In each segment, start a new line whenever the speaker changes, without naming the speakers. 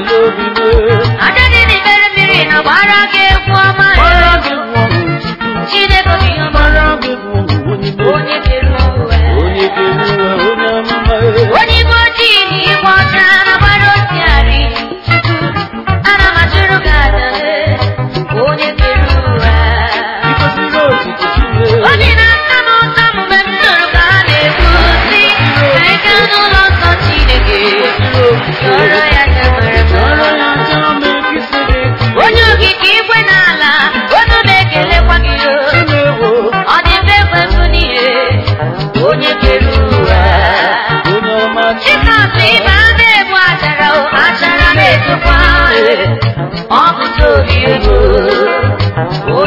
love you. a a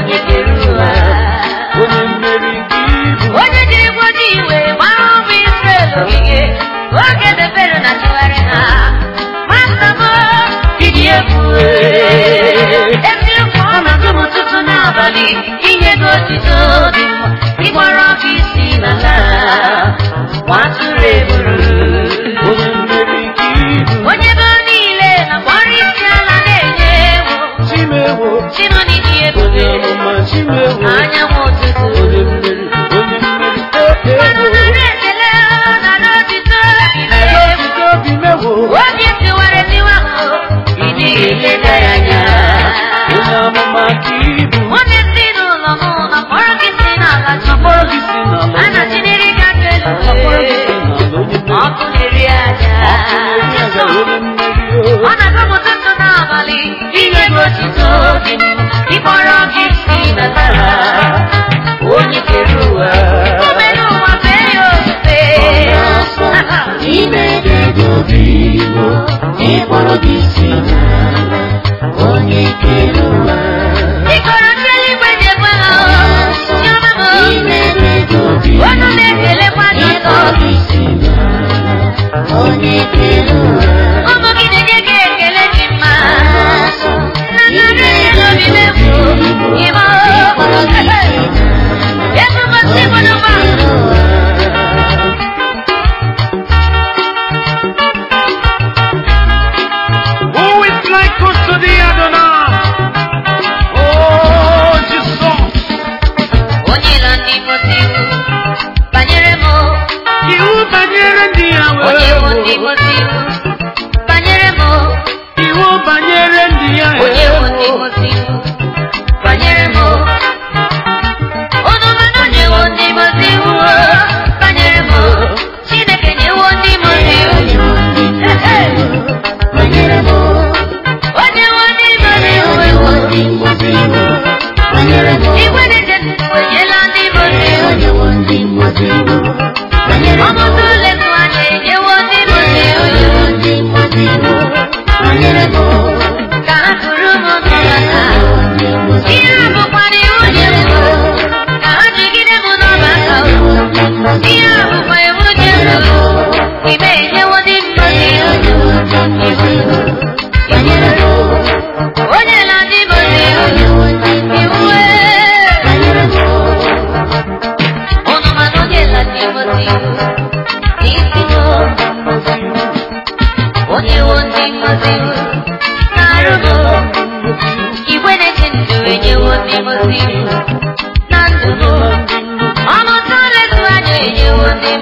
ịkpọrọ gị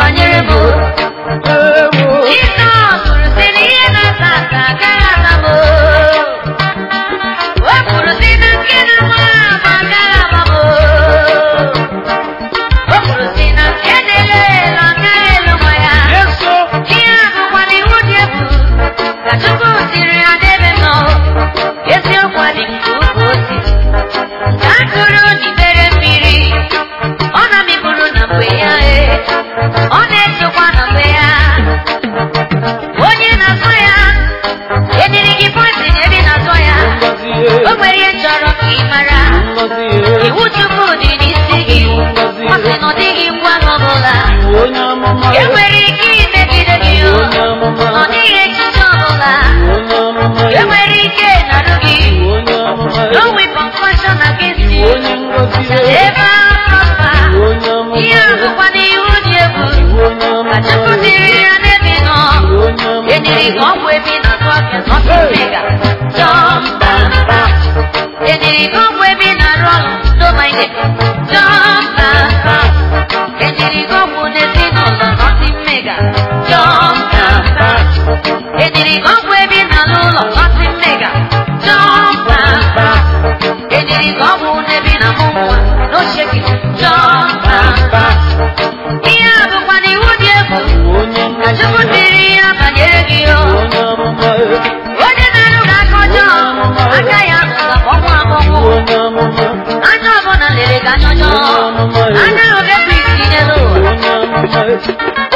banyere bụ enwere ike imegide gị ọ dịghị echiche ọbụla enwere ike narụ gị ebe ihe ahụkwa n'ihu dị egwu ka nọ enyere ọgwụ ebi na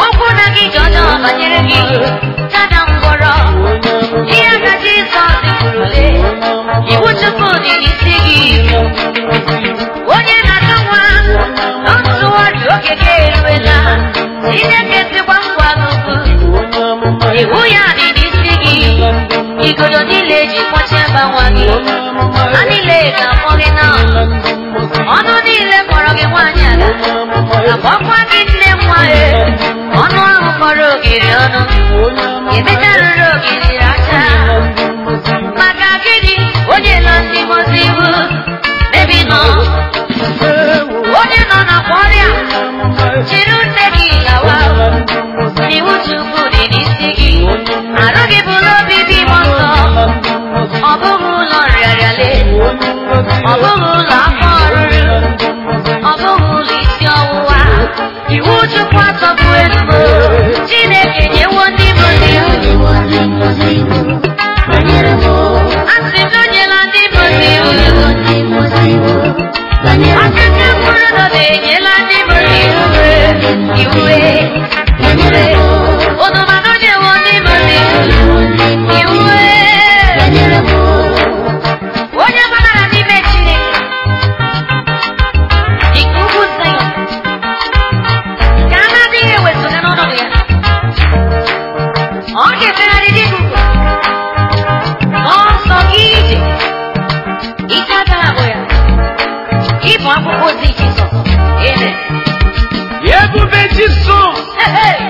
okwu na gị ji ọjọọ gị dada ngwọrọ dị ya na jizọs kwurule iwu chukwu dị n'isi gị onye na-atụ nwa ntụwa dị oge gị eruela chineke tikwa ngwa n'ugwu iwu ya dị n'isi gị
igodo niile ji kpọchie mba
gị nwaanyị ọnụ ahụ kpọrọ ogiri ọnụ emetarụrụ ogiri aka gịnị onye nọ ndị nọ onye na nne gị gawa gị petits sons. Hey, hey.